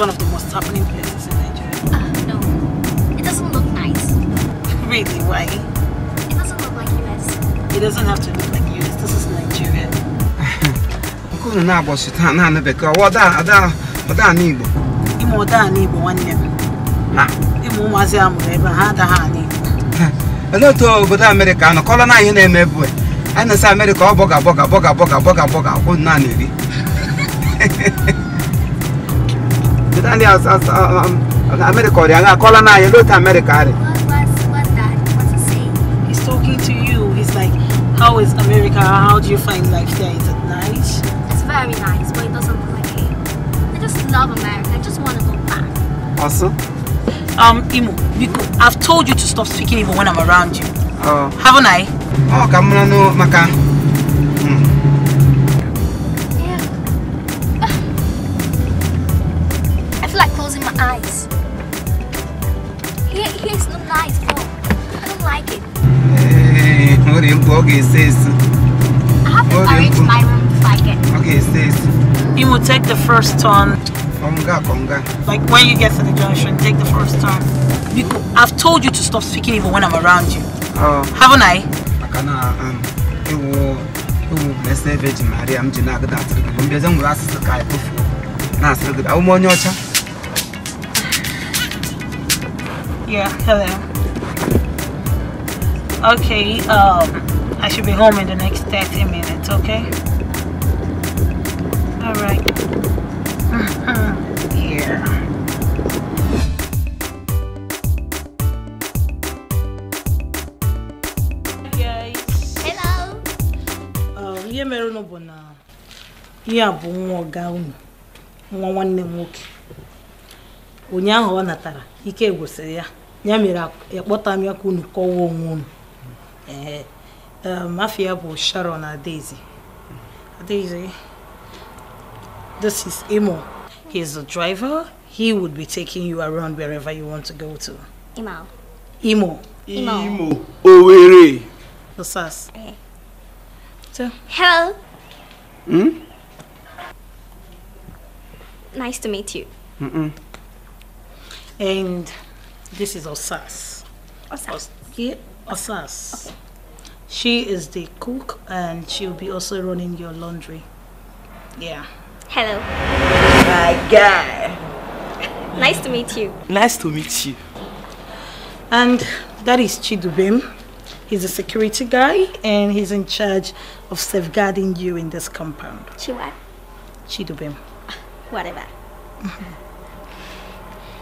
one of the most happening places in Nigeria. uh, no. It doesn't look nice. really? Why? It doesn't look like US. It doesn't have to look like US. This is Nigeria. Nkunu na-agbọsị taa naanị bekee, Da? Da? ada ọda ana Igbo. Ịmụ ọda ana Igbo nwanne m. Na? Ịmụ ụmụazị a mụrụ ebe ha adaghị ana Igbo. Olee otu obodo anọ kọrọ na ihe na-eme ebu anyi bọga bọga bọga bọga bọga bọga akwụ ni ndị um, America call aga akọla you anyị lotu America He's talking to you. He's like, how is America? How do you find life there? Is it nice? It's very nice, but it doesn't look like it. I just love America. I just want to go back. Also? Um, Imo, I've told you to stop speaking even when I'm around you. Oh. Haven't I? Oh, come on, no, Maka. the first turn. Konga, konga. Like when you get to the junction, take the first turn. Because I've told you to stop speaking even when I'm around you. Oh. Haven't I? Akana, um, it will, bless the Virgin Maria. I'm just not going to ask you. I'm just going to ask you. I'm just going to ask you. Yeah, hello. Okay, um, I should be home in the next 30 minutes, okay? Uh-huh. Uh, ihe mere unu bụ na ihe a bụ nwa ọga unu nwa nwanne m nwoke ụnyaahụ ọ natara ike gwụsịrị ya ya mere akpọta m ya ka unu kọwa onwe unu mafia um, bụ sharon na Daisy This is Imo. He's the driver. He would be taking you around wherever you want to go to. Imo. Imo. Imo. Imo. Owerri. The SAS. Okay. Eh. So. Hello. Hmm? Nice to meet you. Mm -mm. And this is Osas. Osas. yeah, Osas. Okay. She is the cook and she'll be also running your laundry. Yeah. Hello. My guy. Nice to meet you. Nice to meet you. And that is Chidubem. He's a security guy and he's in charge of safeguarding you in this compound. Chiwa? Chidubem. Whatever.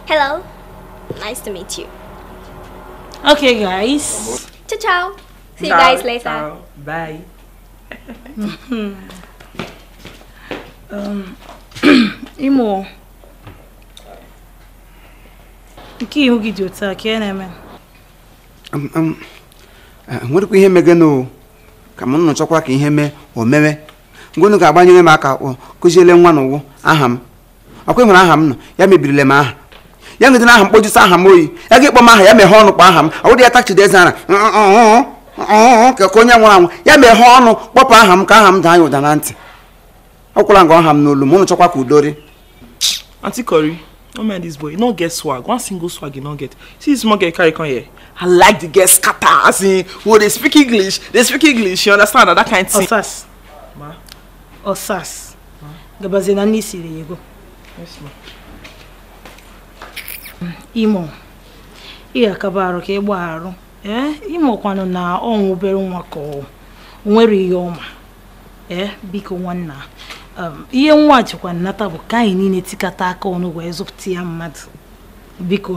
Hello. Nice to meet you. Okay, guys. Ciao, ciao. See you guys later. Ciao. Bye. Mm-hmm. imo nke ihu gị dị otu a ka na-eme enwerekwa ihe megeno ka m nọchọkwa ka ihe mee o mewe ngonu ga-agbanyere m aka kụziele nwa na aha m ọkwa nwere aha m nọ ya mebirila m aha ya ngede na aha mkpojusi aha m oyi ya ga-ekpọ m aha ya meghe ọnụ kpọ aha m ọ wụrụ ya tachide eze ara ka onye nwụrụ anwụ ya meghe ọnụ kpọpụ aha m ka aha m daa ya ụda na ntị ọkwụla ngwa ọha m n'olu m ụnụ chọkwa ka udori aunty no mind this boy no get swag one single swag you no get see this small girl carry come here i like the girl scatter as in who oh, dey speak english dey speak english you understand na that kind thing. ọsas Osas, gabazie na nne siri ego imo ihe akaba arụ ka ịgba arụ ee eh? kwanụ na ọnwụ obere nwa ka ọ nwere ihe ọma ee eh? biko nwanna Um, ihe nwa jikwa nnata bụ ka anyị niile tikata aka ọnụ wee zụpụta ya mmadụ biko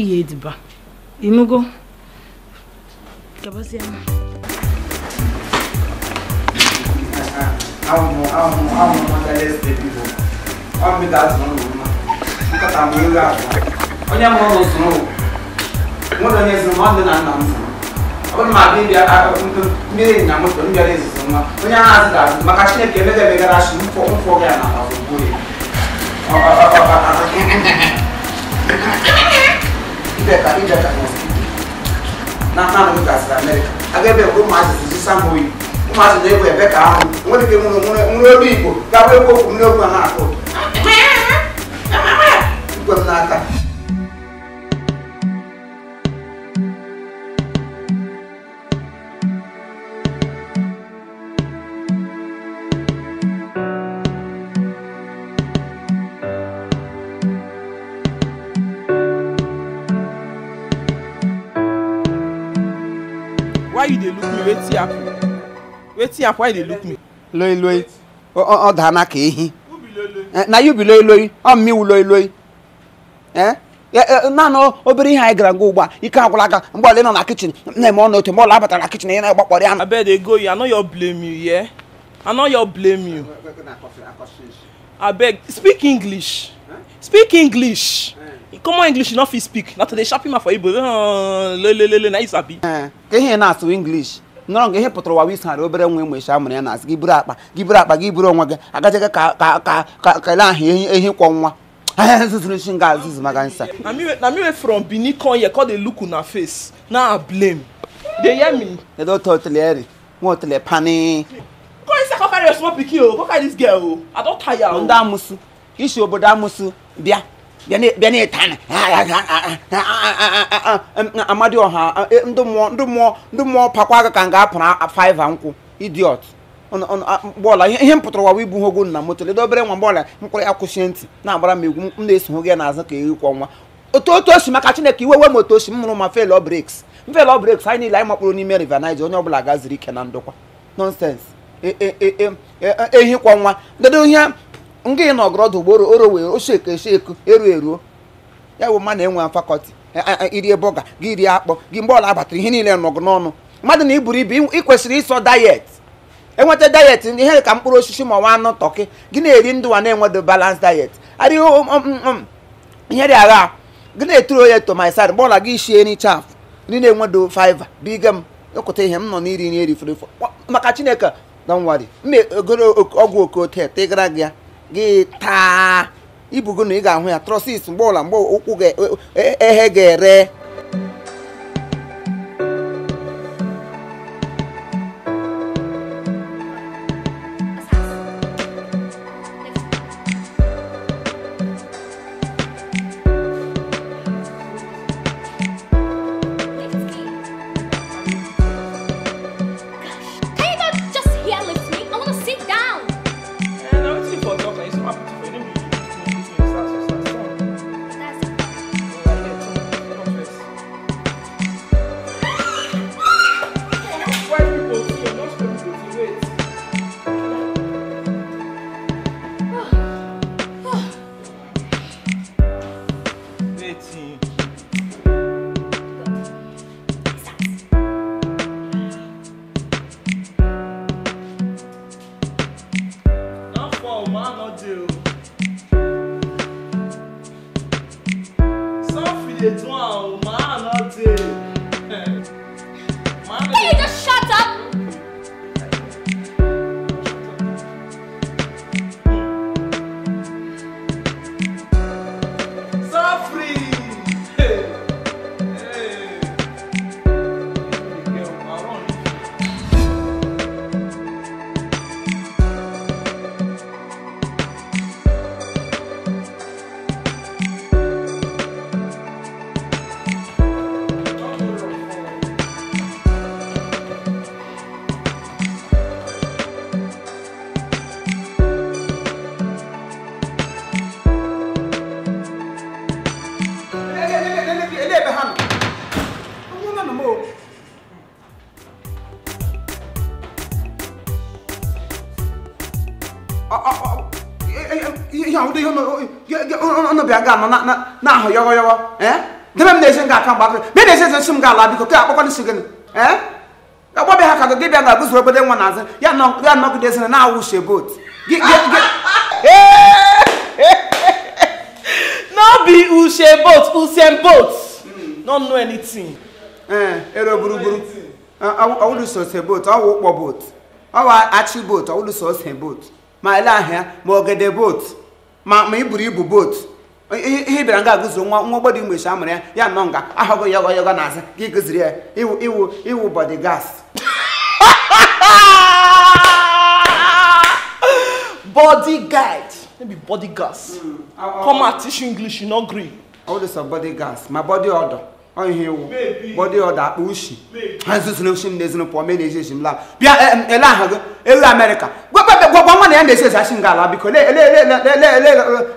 ị ediba ịnụgo onye mụrụ ụzụ nwere onye zụrụ nwanne na nna m zụrụ onye ma ndị mmiri na moto ndị ọrụ izizi nwa onye ahụ azụ ga-azụ maka chineke emega emegara chi mfọ mfọ gị na ọgwụgwụ ya na nanụ m gasịrị amerịka aga ebe ka ụmụazị ji sama oyi ụmụazị na-egwu ebe ka ahụ nwere ike nwere nwere olu igbo gawa egwu okwu m n'okwu a na-akụ igwe m n'aka wetin happen wetin happen why you dey look me. loi loi ọ daa n'aka ehi na you be loi loi ọ mmiwu loi loi eh? eh, eh, naanị obere ihe anyị gara ngwa ugbu a ike agwụla aka mgbe ọla ị nọ na kichin na-eme ọnụ otu mgbe ọla abatara na kichin ị na-agbakpọrọ ya na. abeg dey go you i know your blame you yeah? i know your blame you abeg speak english speak english common english you no fit speak na to dey sharp him for igbo lelelele na you sabi. ka ihe na-asụ english nọrọ nga ihe pụtara ụwa wisara obere nwa mgbe isha amụrụ ya na asị gị buru akpa gị buru akpa gị buru onwe gị agachaga ka ka ka ka kele ahụ ehi kwọ nwa na me from benin come here come dey look una face na i blame dey hear me. edo tó tilẹ̀ ẹ̀rì wọn ò tilẹ̀ pani. kọ́ ẹ sẹ́kọ̀ọ́ carry your small pikin oh. o kọ́ carry this girl o oh. i don tire o. Oh. ndá amusu iṣu obodo amusu bịa bịa na-etana amadioha ndị mmụọ ndị mmụọ pakwa aka ka m ga-apụrụ faiva nkwụ idiot bọọla ihe m pụtara wawa ibu hogo na moto ledo obere nwa bọọla mkpụrụ ya kwụsie ntị na-agbara m egwu m na-esogho eso ya n'azụ ka eri kwa nwa otu otu osi maka chineke iwe we moto osi m mụrụ ma felọ breks mfelọ breks anyị niile anyị makpụrụ n'ime rivanize onye ọbụla gaziri ike na ndụkwa nọnsens ehi kwa nwa dedo ihe nga ị na ọgọrọdụ ugboro oro wee oso eko eso eko eruo eruo ya bụ mmadụ enwe fakọlti e, e, e, irie bọga gị rie akpọ gị mgbe ọla abatara ihe niile nọgụ n'ọnụ mmadụ na iburu ibu ị kwesịrị ịsọ dayet enweta dayet ndị ihe ka mkpụrụ osisi ma nwa anụ tọkị gị na-eri ndụ wa na-enwedo balans dayet arịghị ihere agha gị na-eturu oye tomaisad mgbe ọla gị shie n'icha afụ ndị na-enwedo fiva biga m ịkụta ihe m nọ n'iri nri erifere maka chineke na nwari ọgwụ okote ịgara gị ya gị taa ibugo na ị ga-ahụ ya trọsis mgbe ọla mgbe ụkwụ e, e, ehe ga-ere ka no na na na ho yogo yogo eh de me nese nga kan ba me nese se sum ga la biko ke akwa ni sigen eh ha ka ge bia ga gusu obede nwa na ze ya no ya no de se na awu she boat ge ge ge eh no be ushe boat hmm. no know anything eh, ero buru buru so se boat awu po boat awa achi boat awulu so se boat ma ile ahịa ma ọgede boat ma iburu ibu boat ihe bịara nga agụziri nwa nwa ọgbọdọ igbo amụrụ ya ya nọ nga ahụgo ya ọgọyọgọ n'azụ ka ịgụziri ya iwu iwu gas body guide maybe body gas come out teach english you no gree all this body gas my body order ọ ihe iwu body order akpa ushi ha nzuzu na ushi m na ezinụlọ pụọ mee na eji eji m laa bịa ele ahụ gị ewe amerịka gwagwa nwa na ya na-esi esi asị ala biko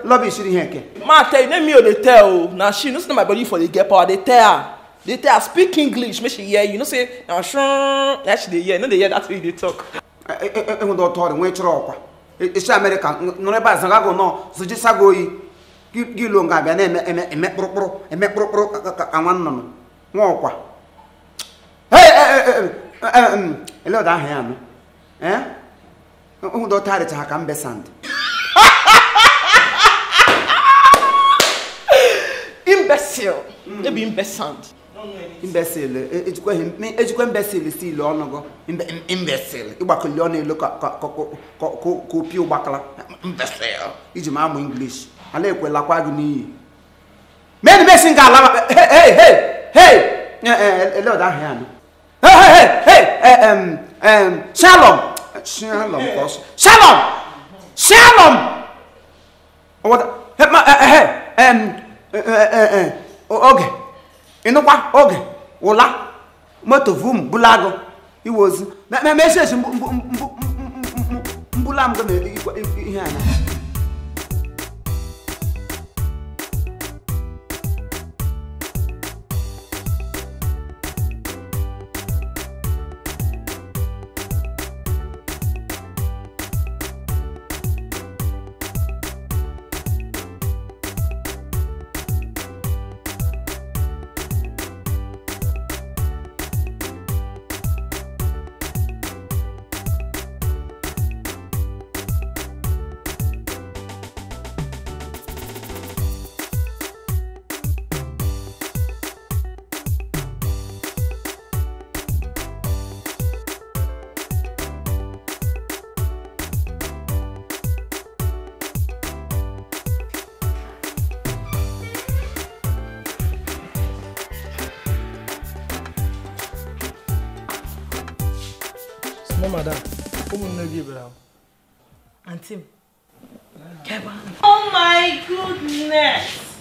lọba siri ihe nke ma tell name me dey oh, tell o na she no na my body for dey get power dey tell a, dey tell a speak english make she hear you know say na shun na she dey hear no dey hear that way you dey talk. ọtọ ọrịa nwee chọrọ ọkwa isi e, e, amerịka nọrọ ebe a nọ oyi nga na eme kpụrụkpụrụ eme kpụrụkpụrụ ụdọ tarịcha ka mbe sand ejikwa imbecil si ile ọnụ gụ ịgbakọli ọnụ elu ka opie ụgbakala iji ma amụ inglish ala ekwelakwa gị n'iyi ga Hey, hey, hey, hey, um, um, Shalom. Shalom, boss. Shalom. Shalom. What? Hey, ma, uh, hey, um, uh, uh, uh, okay. You know what? Okay. Ola. Moto vum bulago. He was. Me me me says mbulam go me ihe ana. wellness.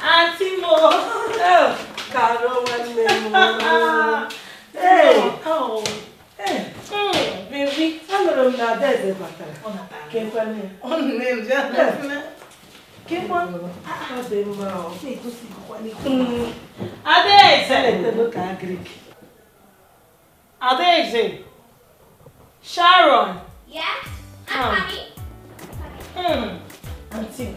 Auntie Mo. Oh. Carol wellness. Mo. hey. Oh. Hey. Mm, baby. Allora una dese battere. Una battere. Che quelli. Un già. Che buono. Ah, sei ah. bravo. Sì, tu sei quali. Adesso. Lette lo cagric. Adesso. Sharon. Yeah. I'm um. coming. Mm. Auntie.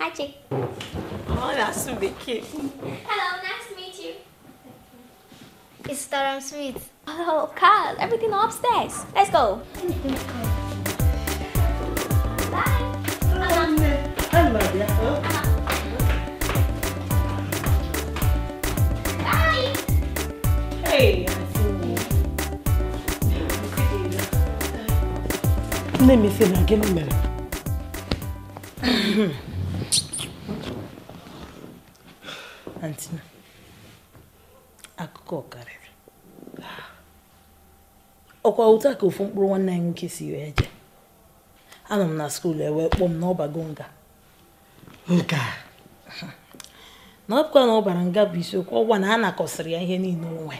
Hi, chick. Oh, that's the kid. Hello, nice to meet you. It's Durham Smith. Oh, Carl, everything upstairs. Let's go. Bye. Hey. Let me see again, Mary. antina akụkọ karịrị ọkwa ụta ka ofu mkpụrụ nwanne anyị nwoke si wee je anọ m na skuulu ewee kpọọ m n'ọbago nga na ọbụkwa na ọ bara nga bụ isiokwu ọgwa na a nakọsịrị ya ihe niile onwe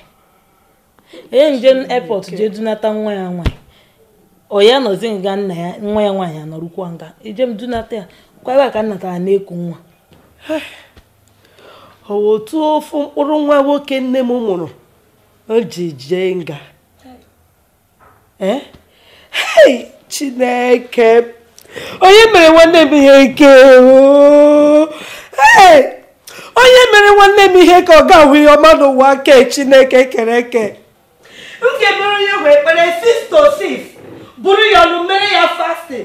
onye nje epọt jee dunata nwa ya nwaanyị ọ ya nọzi nga nna ya nwa ya nwaanyị anọrụkwa nga eje m dunata ya kwara ka nnata a na-eku nwa O otu ofu mkpụrụ nwa nwoke nne m mụrụ o ji jee nga e? chineke onye mere nwanne m ihe nke hei onye mere nwanne m ihe ka ọ ga-ahụ ihe ọma n'ụwa ke chineke kere eke Nke mere onye wee kpere 6 to 6 bụrụ ya ọnụ mere ya fasti.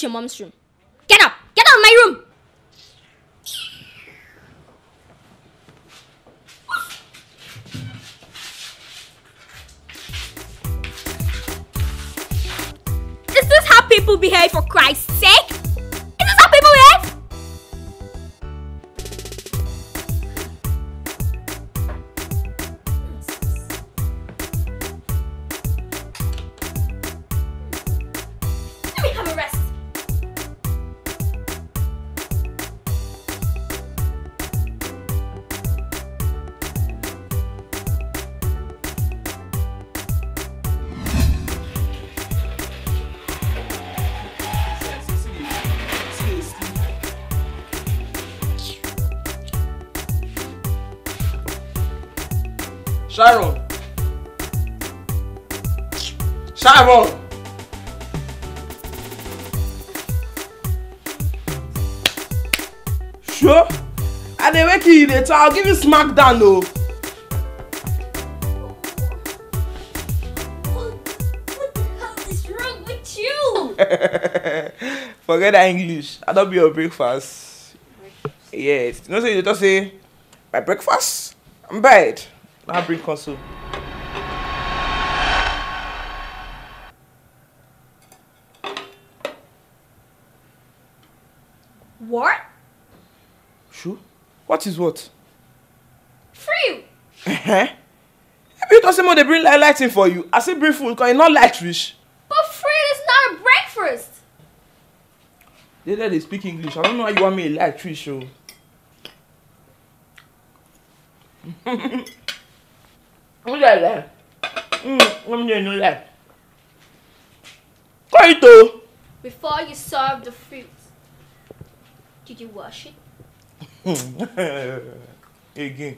to your mom's room. Get up! Get out of my room! This Is how people behave for Christ's sake? Sharon. Sharon. Sure? I dey wake you later. I'll give you smack down though. Forget that English. I don't be your breakfast. breakfast. Yes. You know, so you just say, my breakfast? I'm bad. I'll bring console. What? Sure. What is what? Free. Eh? If you talk say they bring light lighting for you, I say bring food because you e not light rich. But free is not a breakfast. They let they speak English. I don't know why you want me a light rich show lẹ̀lẹ̀ ń nínú lẹ̀ kọ́ ìtò. Before you serve the fruit, did you wash it? Again.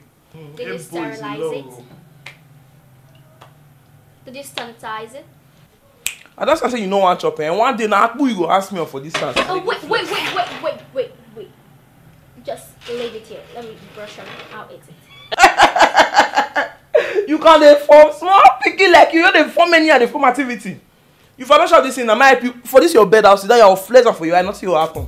Did you sterilize it? Did you sanitize it? I just say you know what, chop and one day na akpu you go ask me for this task. Oh wait, wait, wait, wait, wait, wait, Just leave it here. Let me brush out, out it you can dey form small pikin like you no dey form anyhow dey form activity you for no chop this thing na my help you for this your bed house that your flex am for your eye nothing go happen.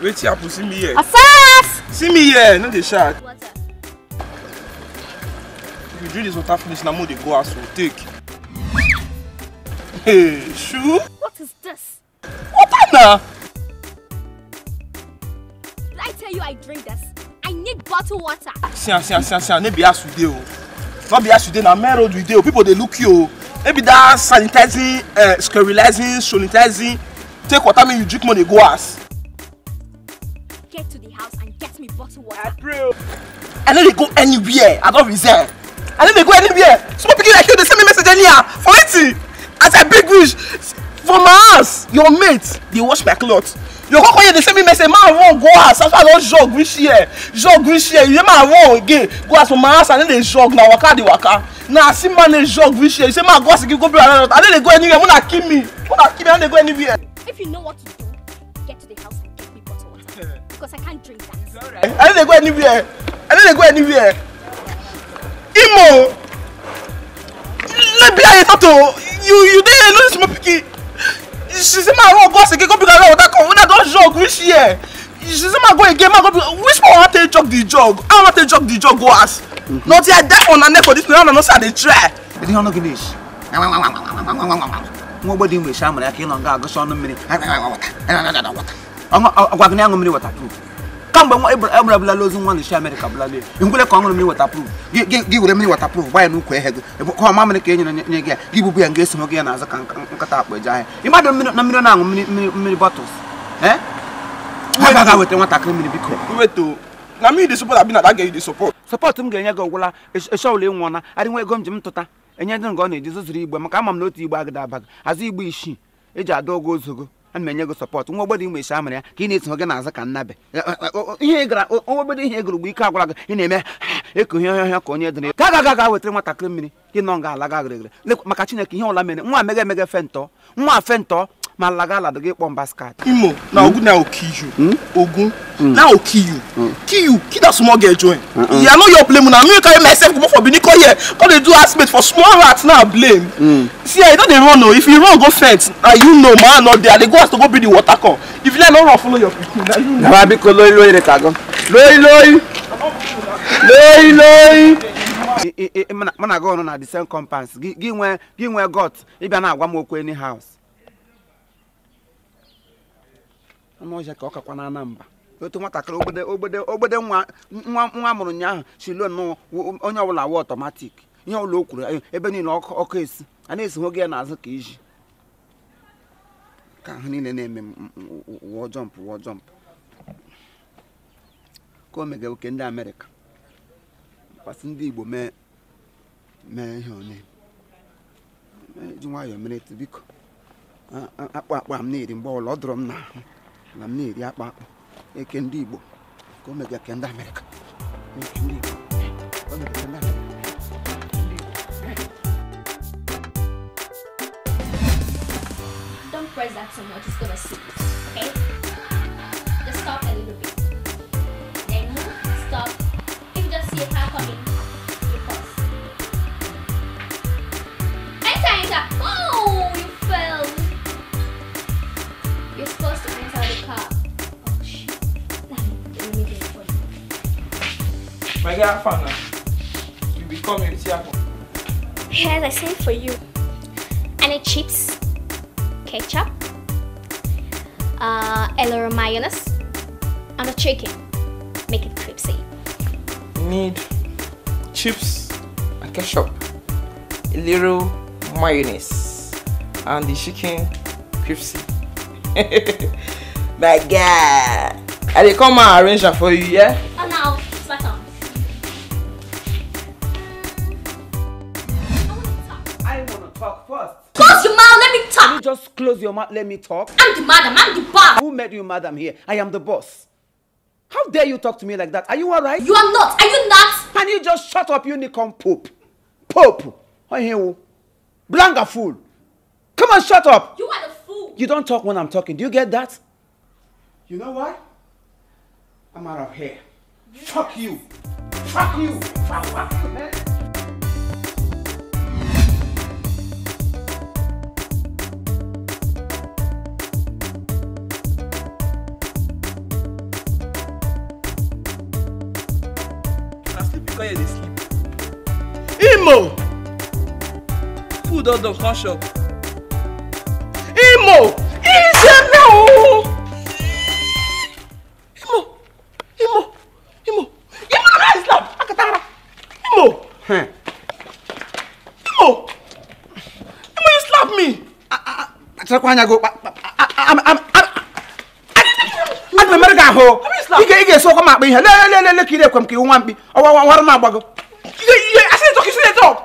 wetin happen see me here. asas. see me here no dey shout. if you drink dis water finish na mo dey go house o take. Shoe? What is this? What now? Did I tell you I drink this? I need bottled water. Sian, sian, sian, sian. Maybe as today, oh. Not be as today. Now, man, road today. People they look you. Maybe that sanitizing, uh, sterilizing, sanitizing. Take water, me you drink money go ass. Get to the house and get me bottled water. I pray. I know they go anywhere. I don't reserve. I know they go anywhere. Small people like you, they send me message anyhow. For it as i big reach for my house your mate dey wash my cloth your koko here dey send me message ma run go house after i don jog reach here jog reach here you say ma run again go house for my house i no dey jog na waka dey waka na as im man dey jog reach here you say ma go house again go bury another i no dey go anywhere una kill me una kill me i no dey go anywhere. if you know what to do get to the house and get me bottle water because i can't drink that. Right. i no dey go anywhere i no dey go anywhere imo lebi aye tato you you dey lose small pikin she say ma run go house again go pick another water come una don jog reach here she say ma go again ma go pick which one wan take jog the jog I wan take jog the jog go house. na till i die for una neck for this. place una no say i dey try. edi ọnụ gị na-esi nwa ogbe dị mgbe shamara aka ịnọ nga agụsị ọnụ mmiri ọgwa gị na-aṅụ mmiri wata too kamgbe ebra abụlala ozu nwa nchi Amerịka bụlala ya ngwele ka ọ mmiri watapruf gị were mmiri watapruf gba ya n'ukwu ehe gị ka ọma ka e nye gị ya gị bụbu ya nga esonye gị ya n'azụ ka nkata akpa eji ahịa ịmadụ na mmiri na-aṅụ mmiri mmiri bọtụls eh? weta nwatakịrị mmiri biko na mmiri dị support na aga m ga-enye gị ọgwụla eshọl e, ịnwụ na adịnwa ego m ji m tụta enye dị nga na-eji zụzụrụ igbe maka ama m na otu igbe agada abaghị azụ igbe isii eji ada ogo ozogo ana m enye gị nwa ogbodo ị isi amara ya ka ị na-eso gị na-aza ka e, e, ihe gara nwa ogbodo ihe egoro mgbe ike agwara gị ị na-eme eku ihe ọhịa ka onye dịrị ka aga aga wetara nwatakịrị mmiri gị nọ nga ala ga gịrịgịrị maka chineke ihe ọla mere nwa meghe fe fentọ nwa ntọ Malagala the get one basket. Imo, na Ogun na kill Ogun na kill you. Kill you. small girl join. Yeah, I know you're blaming. I'm going to carry myself go for Benin here. Come they do aspect for small rats now blame. See, I don't run no. If you run go fence, ah you know man not there. They go have to go bring the water come. If you let no run follow your people, now you know. Na bi ko loyi loyi re ka go. Loyi loyi. Loyi loyi. mana ga ọrụ na the same compounds gị nwee gị nwee got ịbịa na-agwa m okwu any house anụ ọhịa ka ọ kakwa na anamba otu nwatakịrị ogbede ogbede nwa nwa mụrụ ụnyaahụ shilon onye ọbụla awa ọtọmatik ihe ọbụla o kwuru eh, ebe niile ọkụ esi a na-esi nwoge ya n'azụ ka iji ka ahụ niile na-eme wụọ jọmp wụọ jọmp ka o mega oke ndị amerịka kwasị ndị igbo mee mee ihe onye ji nwayọọ mere biko akpụ akpa m na-eri mgbe ọbụla ọ dụrọ m n'ahụ na m na-eri akpa akpụ e eke ndị Igbo ka e o mega ke ndị Amerịka Don't press that so much, it's gonna sink. Tiafa now. Eh? You become a Tiafa. Here's the same for you. Any chips, ketchup, uh, a mayonnaise, and a chicken. Make it crispy. Need chips and ketchup, a little mayonnaise, and the chicken crispy. My God! I will come and arrange that for you, yeah? Close your mouth. Let me talk. I'm the madam. I'm the boss. Who made you madam here? I am the boss. How dare you talk to me like that? Are you alright? You are not. Are you not? Can you just shut up, you unicorn pope? Pope. Oh? Blanca fool. Come on, shut up. You are the fool. You don't talk when I'm talking. Do you get that? You know what? I'm out of here. You Fuck you. Fuck you. Fuck, fuck, man. come here dey sleep. imo. food don done come Imo, imo Imo, ooo. imo imo imo imo rise now akatara imo. imo imo you slap me. acharakwa anya go aga m emere gị ahụ ị ga-eso ọkwa m akpa ihe lelelele ka ị na-ekwe m ka iwu nwa mkpi war naa bëgg. yéen asile toog asile toog.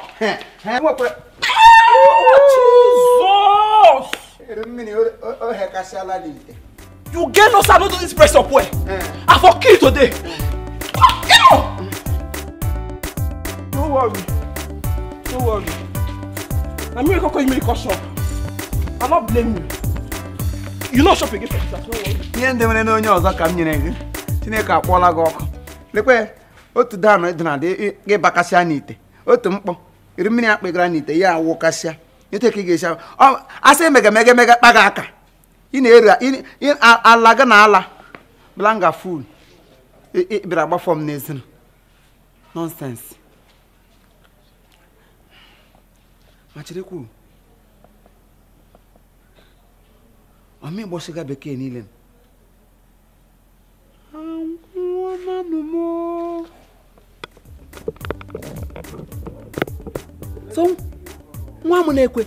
mo you get no sir no do this press up well. I for kill today. no worry no worry I'm here to call you make shop I'm not blaming you. you not shopping again for this no worry. ihe ndị mere n'onye ọzọ ka m nyere gị Chineke akpọọla gị ọkụ lekwe otu danụ ịdịna dị ịbakasịa n'ite otu mkpọ iri mmiri na gara n'ite ya awụkasịa ete ka ị ga-esi asị aka ị na-eri ala gị na ala blanga ful bịara agbafọ m n'ezin nọnsensị ma cherekwu bekee niile m m na-ekwe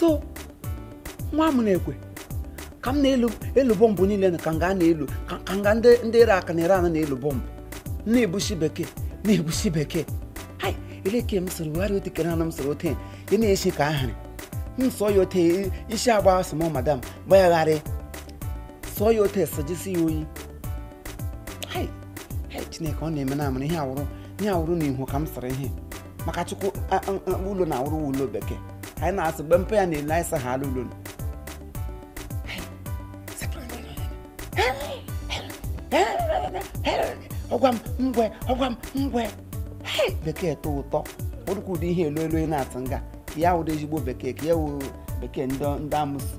so nwa m na-ekwe ka m na-elu bọmbụ niile ka m ga na-elu ka m ndị ere aka na ere ana na-elu bọmbụ na-ebusi bekee na-ebusi bekee ele ka m soro wegharị ote kere ana m soro ote ị na-esi ka ahịrị m ya ote isi agba sị madam bayagharị, sọ ya ote sọjisi ya oyi chineke ọ na-eme na amara ihe awụrụ ihe awụrụ na ihu ka m sịrị ihe maka chukwu ụlọ na awụrụ ụlọ bekee anyị na asị mgbe mpe ya na-ele anyị sa ha alụ ụlọ ọgwa m ngwe ọgwa ngwe bekee tọ ụtọ orukwu ụdị ihe elu elu na-atụ nga ya wụrụ ezigbo bekee ka ya wụ bekee ndị amụsị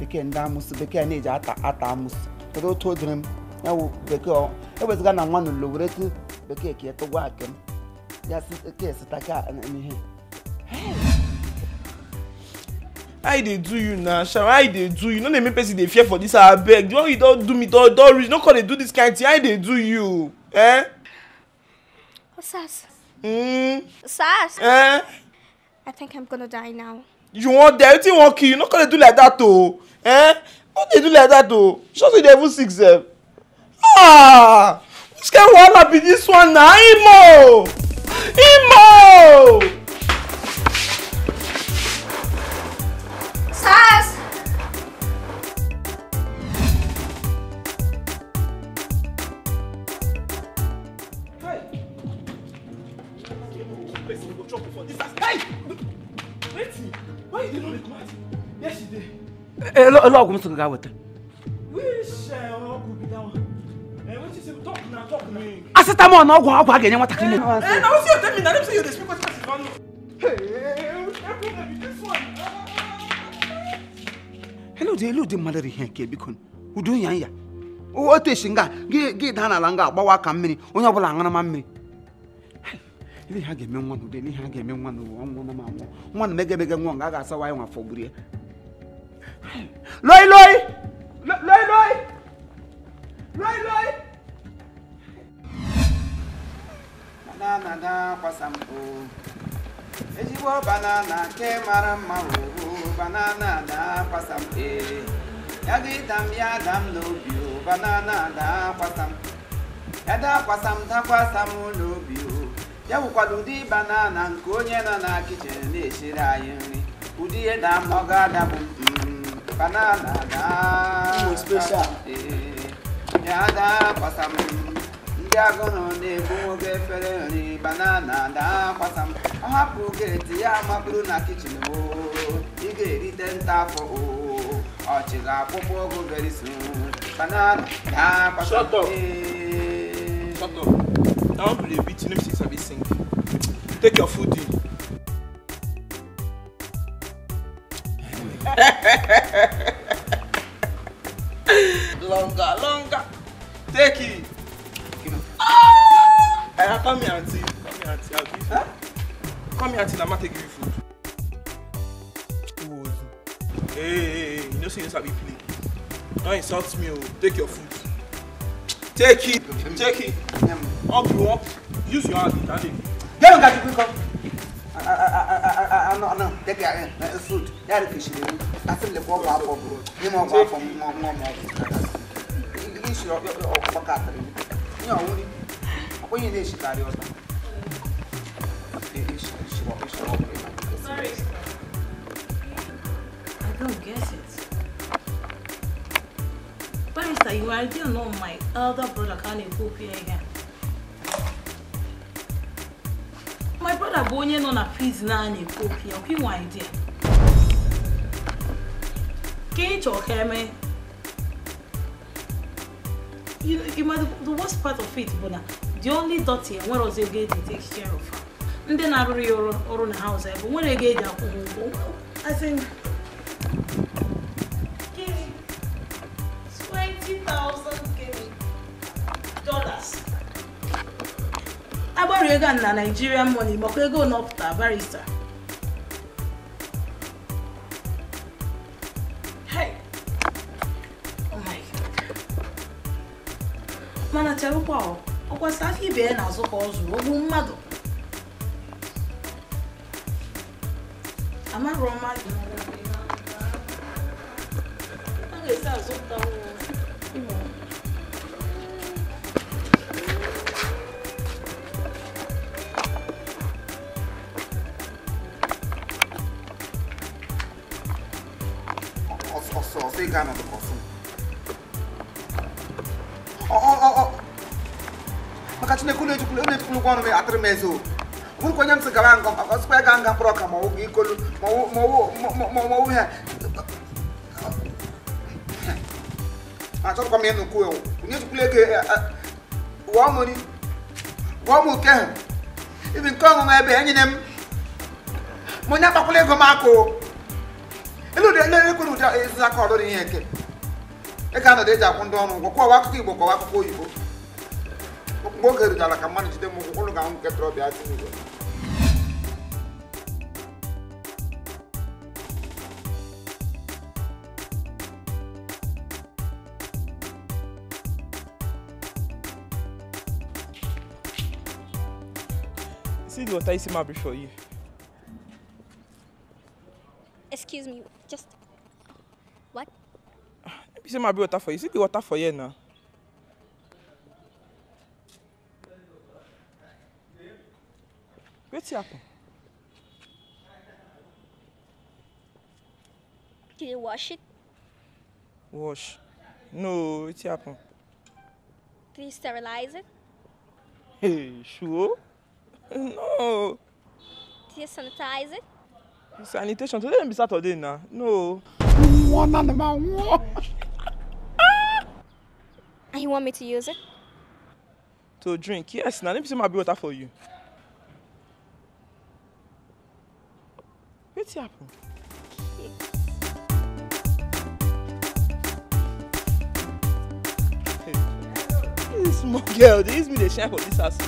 bekee ndị amụsị bekee na-eji ata ata amụsụ kedu otu o dịrị m ya wụ bekee eweziga na nwa n'ụlọ were bɛkɛ kɛ ɛtɔ wɔ akɛm yasi kɛ sita ka ɛni hɛ. i dey do you na shaw i dey do you no dey make person dey fear for dis abeg the one you don do me don don reach no come dey do this kind thing i dey do you. Eh? Oh, Sas. Mm. Sas. Eh? I think I'm gonna die now. You want die? You think want kill? You not gonna do like that, oh? Eh? What they do like that, though? Just the devil six. Eh? Ah! Scare wahala be this one na Imo! Imo! Sars! Hey, look, look, I'm going to go with it. paracetamol na ọgwụ ọgwụ a ga-enye nwatakịrị eludi eludi mmadụ ihe nke biko udu nya nya otu esi nga gị daa n'ala nga agbawa aka mmiri onye ọbụla aṅụrụma mmiri ihe ha ga-eme nwa n'ude ihe ha ga-eme nwa n'ụwa nwa nọ ma nwa na megemege nwa nga a ga-asawa anyị nwa fọgburu ya loi loi loi loi loi loi banana na-akwasa mpụ ezigbo banana nke mara mma wuru banana kwasa akwasa mpe ya ga ịda m ya ada m n'obi o banana na-akwasa m ya akwasa m dakwasa m n'obi o ya bụkwara ụdị banana nke onye nọ na kichin na-esiri anyị nri ụdị ihe da m ọ ga-adabụ mm, banana na-akwasa m ya da akwasa m ndị agụnụ na-egbu nwoke efere nri banana daa kwasam ọ hapụ geeti ya mapụrụ na kichin ị ga-erite nta afọ ọchị ga-akpụkpọ ogo very banana daa kwasam ee. Shut up. I be play beat, you know say sabi sing. Take your food in. longer, longer. Take it. Uh, come here, auntie. Come here, auntie. I'll give you. Huh? Come here, auntie. I'ma take give you food. Who was you? Hey, hey, hey. You know, say you sabi play. Don't insult me. Oh. Take your food. Take it. Take it. Up you up. Use your hand. Take it. Hey, you got to quick up. I, I, I, I, I, I no. Take it. It's food. Yeah, the fish. I feel the ball up, bro. You know, I'm from, I'm from, I'm from. You should, you're, you're, you're, you're, you're, you're, you're, you're, 你好，问你，我也是打掉的。Sorry. I don't get it. Barista, you already know my elder brother can't even here again. My brother bụ onye nọ na prison a na-ekwu okwu ya, ọ bụ inwe idea. Ka ị chọọ ka emee you, you might the, the worst part of it bụ the only dirty nwere ọzọ ego eji take care of ndị na-arụrụ ya ọrụ ọrụ na house ebe nwere ego eji akwụ ha ụgwọ as in agbarụ ego in Nigerian money but I gbakwa ego to barrister e n'azụ ka ọ zụrụ ogbu mmadụ imezo wụrụ onye m sị gaba nga ọsịkwa ga nga mkpọrọ ọka ma ọwụ ikolu ma ọwụ ha achọrọkwa m ịnụ kwuo onye tukwula ego wụọ m nri wụọ m oke ha ibi nke ọṅụṅụ ebe enyi na m m onye agbakwụla ego m akụ ilu dị ele ekwere ụdị aka ọrụ dị ihe nke ị ga-anọdụ eji akwụ ndị ọrụ ụgwọ kwụọ akụkọ igbo kọwa akụkọ oyibo mgbe oge rigara ka mmadụ jide m ụkwụ ụnụ ga-ahụ nke trọbịa asị n'igwe See the water Isima isso, you. Excuse me, just what? Isima bring water for you. See the water for you now. wetin happen. you wash it. wash no wetin happen. did you sterilize it. hey sure no. did you sanitize it. sanitation today no be saturday na no. one animal one. and you want me to use it. to drink yes na let me see my water for you. wetin happen. dis small girl dey use me dey shine for dis house.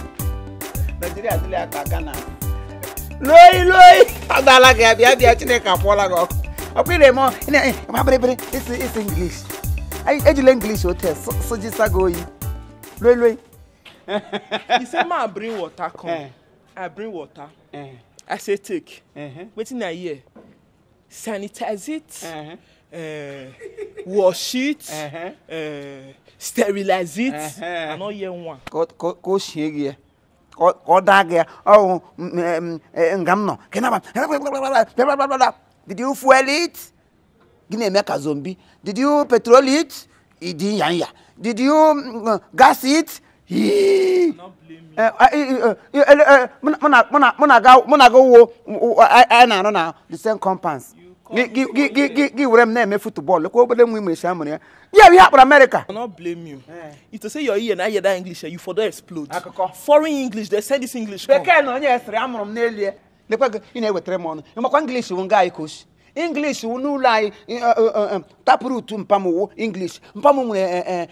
nigeria adịghị aka aka na loyi loyi adala gị abịa bịa chineke akwụọla gị ọkụ ọkụ ire mọ mabịrịbịrị isi isi english ejila english hotel sojisa gị oyi loyi loyi. He say ma bring water come i eh. ah, bring water. Eh i say take wetin i hear sanitize it uh -huh. uh, eh, wash it uh -huh. uh, eh, sterilize it uh -huh. i no hear one. kò ṣe rí ẹ kò dá gẹ ọhún ngam nọ kìnnàbà blablabla did you fuel it gini eme ka zombi did you petrol it ìdí yanya did you mm, gas it yii mụnaga wo anyị na-anọ na the same compounds gị were m na-emefu bọọlụ ka obere nwa imechi amụrụ ya yeah, we have for America. I blame you. If to say your ear and I hear that English, you for that explode. Foreign English, they say this English. Bekee na onye esiri amụrụ m n'elie. Lekwa gị ị na-ewetere m ọnụ. Ịmakwa English bụ nga anyị koshi english wunu lai eh, eh, eh, taproot mpamu wo english mpamu mure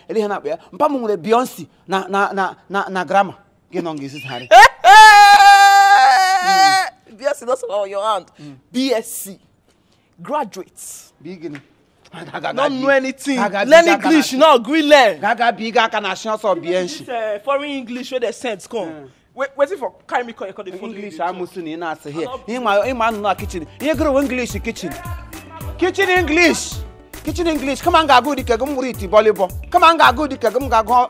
elihe na kpea mpamu mure beyonce na na na na na grammar gị nọ ngi sisi Bsc, beyonce no sofa your hand hmm. bsc graduate bigini not know anything learn english now gree learn. gaga bi gaga na ṣe ọsọ bi ẹ uh, foreign english wey dey send come. Hmm waiting for carry me call the phone. English amusu ni ina ase here. Ima ima anu na kitchen. You grow English kitchen. Kitchen English. Kitchen English. Come on, go dike. di kegum muriti volleyball. Come on, go dike. di kegum go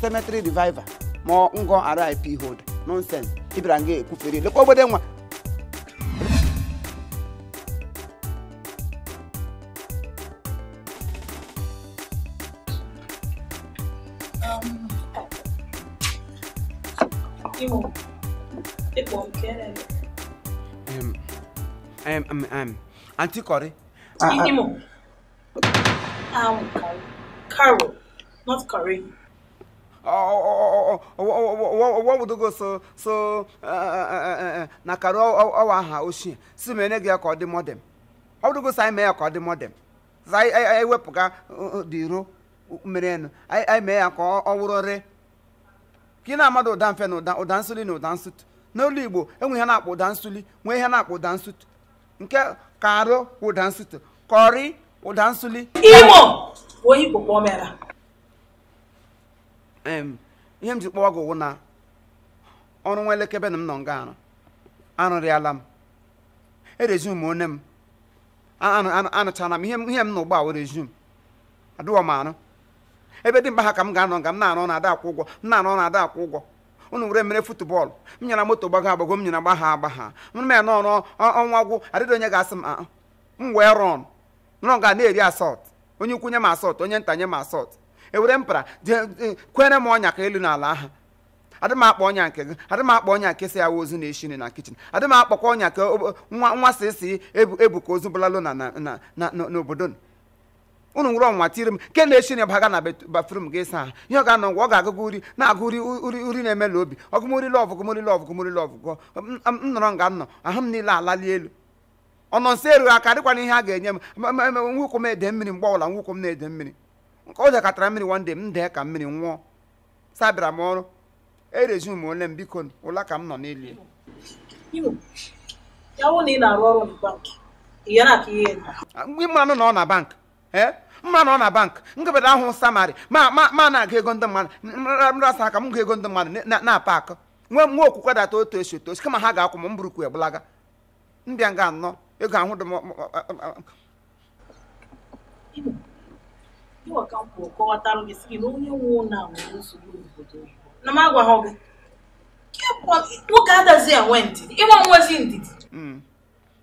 cemetery revival. Mo ngo RIP hold. Nonsense. Ibra nge ekufere. Lekwa obode nwa. digo, que cualquiera. Um, um, um, um, Auntie Corey. Uh, Carol, not Corey. Oh, oh, oh, what would go ya ka ọ ka ị na-amada ụda mfe na ụda ụda nsuli na ụda nsụtụ n'olu igbo enwe ihe na-akpọ ụda nsuli nwee ihe na-akpọ ụda nsụtụ nke ka arụ ụda nsụtụ kọrị ụda nsuli imo ihe m ji kpọwa gị wụ na ọrụ nwa elekebe na m nọ nga arụ arụrịala m erezum m m anụchala m ihe m na ụgbọ a were zum m arụ ebe dị mkpa ha ka m ga-anọ nga m na-anọ na ada akwụ ụgwọ m na-anọ na ada akwụ ụgwọ unu were mere futbọl m nyere moto gbago agbago m nyara gbagha agbagha m ya nọ ọrụ ọnwa gwụ adịdị onye ga-asị m ah, ah. m wee rọn nọ ga na-eri asọt onye ukwu nye m asọt onye nta nye m asọt ewere mpara kwere m ọnya ka elu n'ala aha adị m akpa ọnya nke gị adị m akpa ọnya nke si awa ozu na-eshiri na kichin adị m akpọkwa ọnya ka nwa nwa si ebu ka ozu bụlalụ obodo ụnụ nwere ọnwa tiri m nke na-esi na baga na bafrum gị saa ihe ọ ga-anọ ngwa ọ ga-agụgụ uri na-agụ uri na-emela obi ọgụmori lọv gụmori lọv gụmori lọv gụọ nnọrọ nọrọ nga nọ ahụ m niile alali elu ọnọ nsọ erughị aka dịkwana ihe a ga-enye m nwụkwụ m ede mmiri mgbe ọbụla nwụkwụ m na-ede mmiri nke ọ jakọtara mmiri wande m dee ka mmiri nwụọ sabịara m ọrụ erezum ole m biko ụla ka m nọ n'ili ịmanụ na ọ na bank eh? mma na ọ na bank nkebada ahụ samari ma na aga ego ndị mmadụ nrasa aka m ga ego ndị mmadụ na-apa akụ nwe okwukwe data otu esi otu osi kama ha ga-akwụ m mburukwu egbulaga mbịa nga anọ ego ahụ dị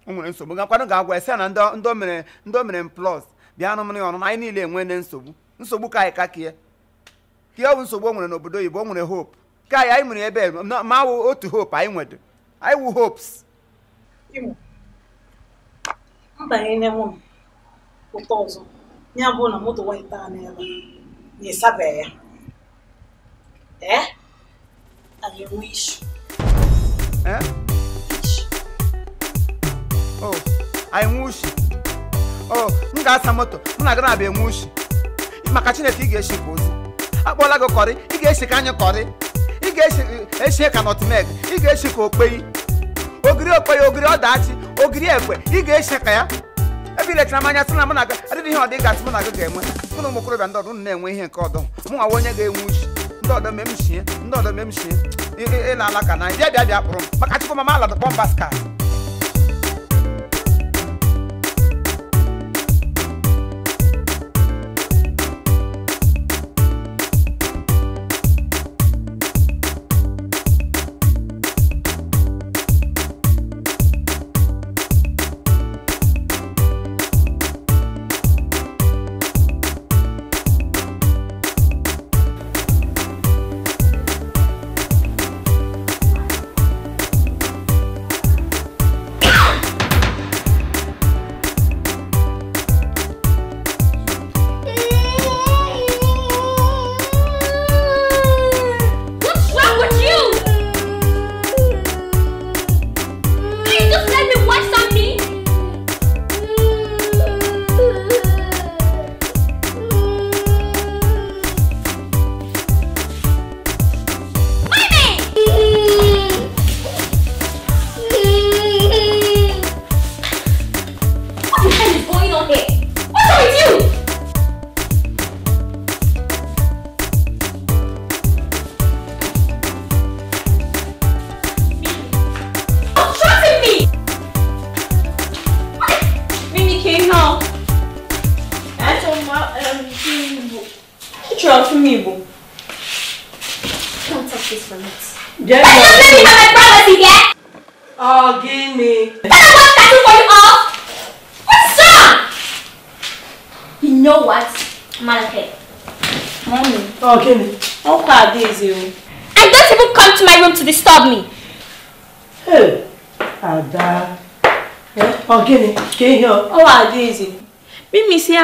m o nwere nsogbu gakwado ga-agwa ese na ndị o mere ndị o mere m plus bịanụ ya ọnụnụ anyị niile enwene nsogbu nsogbu ka anyị kakee ka ọ bụ nsogbu o nwere n'obodo oyibo o nwere hope ka anyị anyị nwere ebe ma wụ otu hope anyị nwere anyị wụ hopes mbanyere m ụtọ ọzọ ya bụ na moto waịta oh, anyị enwe isu Oh, m ga-asa moto m na-aga na-abịa enwe ushi maka chineke ị ga-eshi bụ ozi akpọla gị kọrị ị ga-eshi ka anyị kọrị ị ga-eshi e, ka nọtmek ị ga-eshi ka okpeyi ogiri okpeyi ogiri ọdachi ogiri ekwe ị ga-eshi ka ya ebe ilechara m anya sị na mụ na gị adịghị ihe ọdị gasị mụ na gị ga-enwe mụ na ụmụ okorobịa ndị ọdụ na-enwe ihe nke ọdọ mụ nwa onye ga-enwe ushi ndị ọdọ mee m shie ndị ọdọ mee m shie ịla ala na bịa bịa bịa kpụrụ m maka chukwu mama aladụ kpọmba skar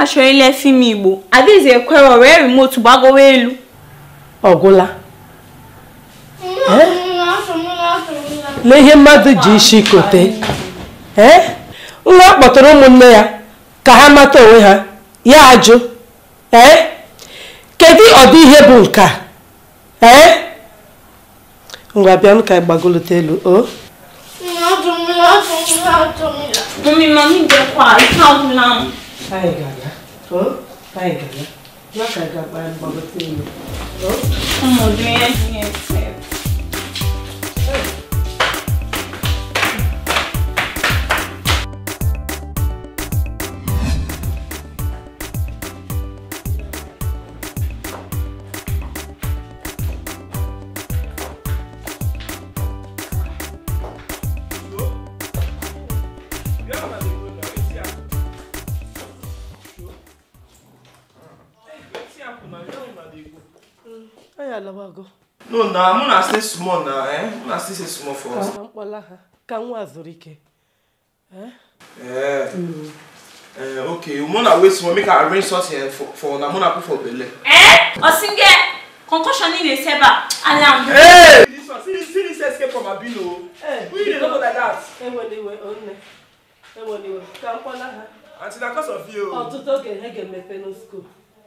achọ ilefi m igbo adịghịzi ekwere wee remote gbagowa elu ọgwụla na ihe de ji isi lá nwa kpọtara ụmụnne ya ka ha mata onwe ha ya ajụ ee kedu ọdị ihe bụ nke a ee ngwa bịa m ka gbagolite elu o Mami, mami, deu quase. Salve, não. não, não to fine na ka ga ban ba ba sai ne to mun je no na mụ na stay small na eh mụ na stay stay small for us. ka mkpọla ha eh? ka nwa zuru ike. ee eh? eh. mm. ok mụ wait small make arrange something for for na mụ na put for belle. ee osinge concussion ị na-esi ebe a ala m. ee this one see see this escape from abino o. who you dey talk like that. hey, iwe they were. iwe ka mkpọla ha. until na cause of you. ọtụtụ oge ha ga-emepe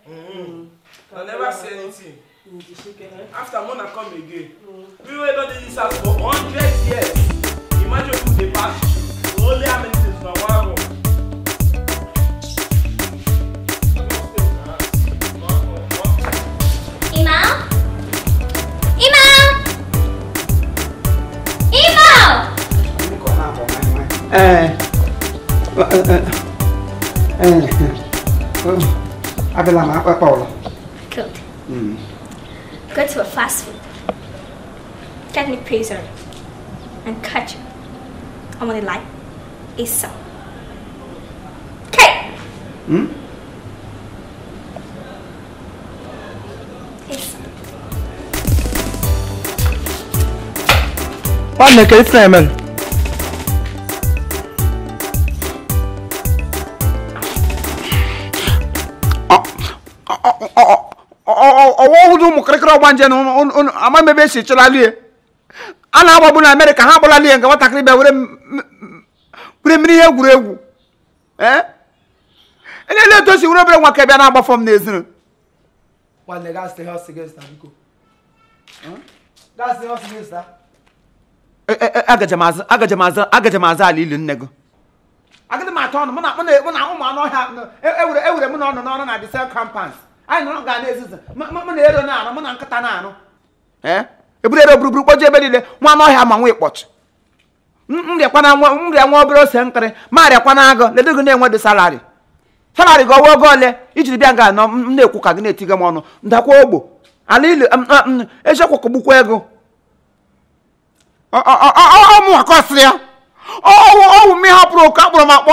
Hmm. I never say anything. Mm, eh? after mona come again mm. we wey don dey use am for hundred nakalipna hemen. ọwọ hụrụ ụmụ kịrịkịrị ọgba nje na amaghị ebe ama echelalie a na bụ na amerịka ha agbalalie nke nwatakịrị bịa were mmiri ihe egwuregwu ele etu osi were obere nwa ka bịa na-agbafọ m n'ezinụ nwanne gaa Eh, eh, eh, agaje m aza ala ili nne gị agịdị m atọ ọnụ mụ na mụ anụ ọhịa ewere e ewere mụ na ọnụ na disel kampans anyị nọrọ na-ezizi mụ na ero na-arụ mụ na nkịta na-arụ eburu e ero buruburu ebe niile nwa anụ ọhịa ma nwa ose nkịrị ma enwe dị salarị salarị gị oge ole ijiri bịa nga anọ na-ekwu ka gị na-etiga m ọnụ ndakwa ogbo ala ili kụgbukwa ego ọmụ akọsị ya ọwụ ọwụ m ihe hapụrụ oke akpụrụ m akpọ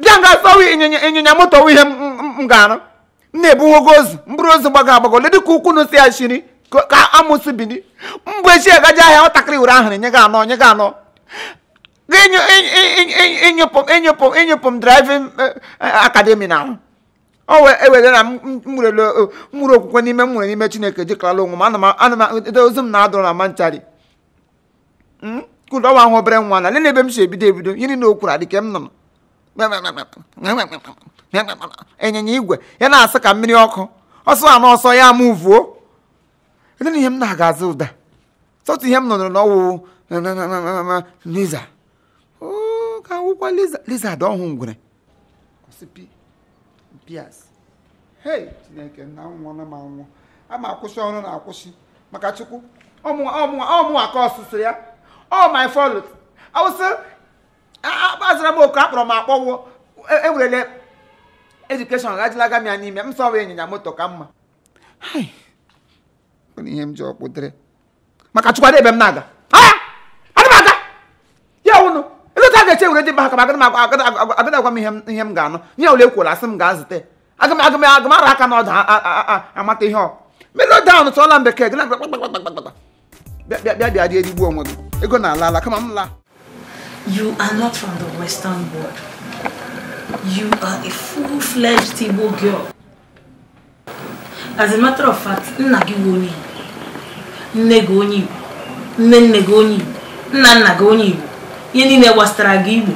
bịa nga asawa ịnyịnya moto ihe m ga-arụ m na-ebuwogo ozu mkpụrụ ozu gbago agbago ledị ka ukwu nụsi ya shiri ka amụsị bini mgbe echi agaji ahịa nwatakịrị were ahụrụ nye gị anọ nye gị anọ ịnyụpụ ịnyụpụ m driving akademi na ahụ o ewere na mgburu okwukwe n'ime m nwere n'ime chineke jikarala onwe m ana m ozu m na-adụrụ na manchari Hmm? kụda nwa ahụ bere nwa na nene ebe m si ebido ebido yiri na okwuru adịke m nọ ịnyịnya igwe ya na-asị ka mmiri ọkụ ọsọ a na ọsọ ya ama uvuo ede ihe m na-aga azụ ụda sọtụ ihe m nọrọ n'ọwụ liza ngwere chineke na nwụọ ama akwụsị ọsụsụ ya ọ my fault awụsị akpazara m oku akpọrọ m akpọwụ ewerele edukeshọn gajila m ya n'ime m sọwa ịnyịnya moto ka mma ọ ihe m ji ọkpụdere maka chụkwado ebe m na-aga m aga ya wụnụ ịlụta ga-eche dị mba ka agada m ihe m ga-anụ nye ole asị m gaa zute aka n'ọdụ amata ihe ọ tụọla m bekee gị na bịa bịa bịa onwe gị ego na ala ala kama m laa You are not from the Western world. You are a full-fledged Igbo girl. As a matter of fact, nna gị bụ onye Igbo, nne gị onye Igbo, nne nne gị onye Igbo, nna nna gị onye Igbo, ihe niile gbasara gị Igbo.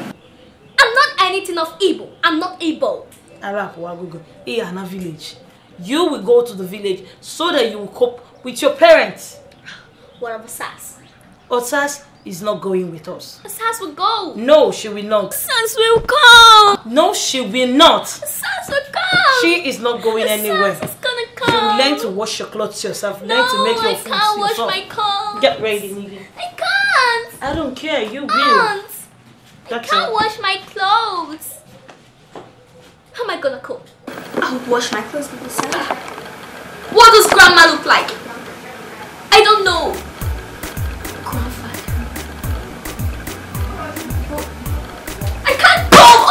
I'm not anything of Igbo. I'm not Igbo. Arapuwagogo, Iyana village. You will go to the village so that you will cope with your parents. What of Osas? Osas is not going with us. Osas will go. No, she will not. Osas will come. No, she will not. Osas will come. She is not going Osas anywhere. Osas is gonna come. You learn to wash your clothes yourself. No, learn to make your I can't yourself. wash my clothes. Get ready, Nigga. I can't. I don't care. You will. Aunt, That's I can't wash my clothes. How am I gonna cook? I'll wash my clothes with myself. What does grandma look like? I don't know qualified. I can't qualify!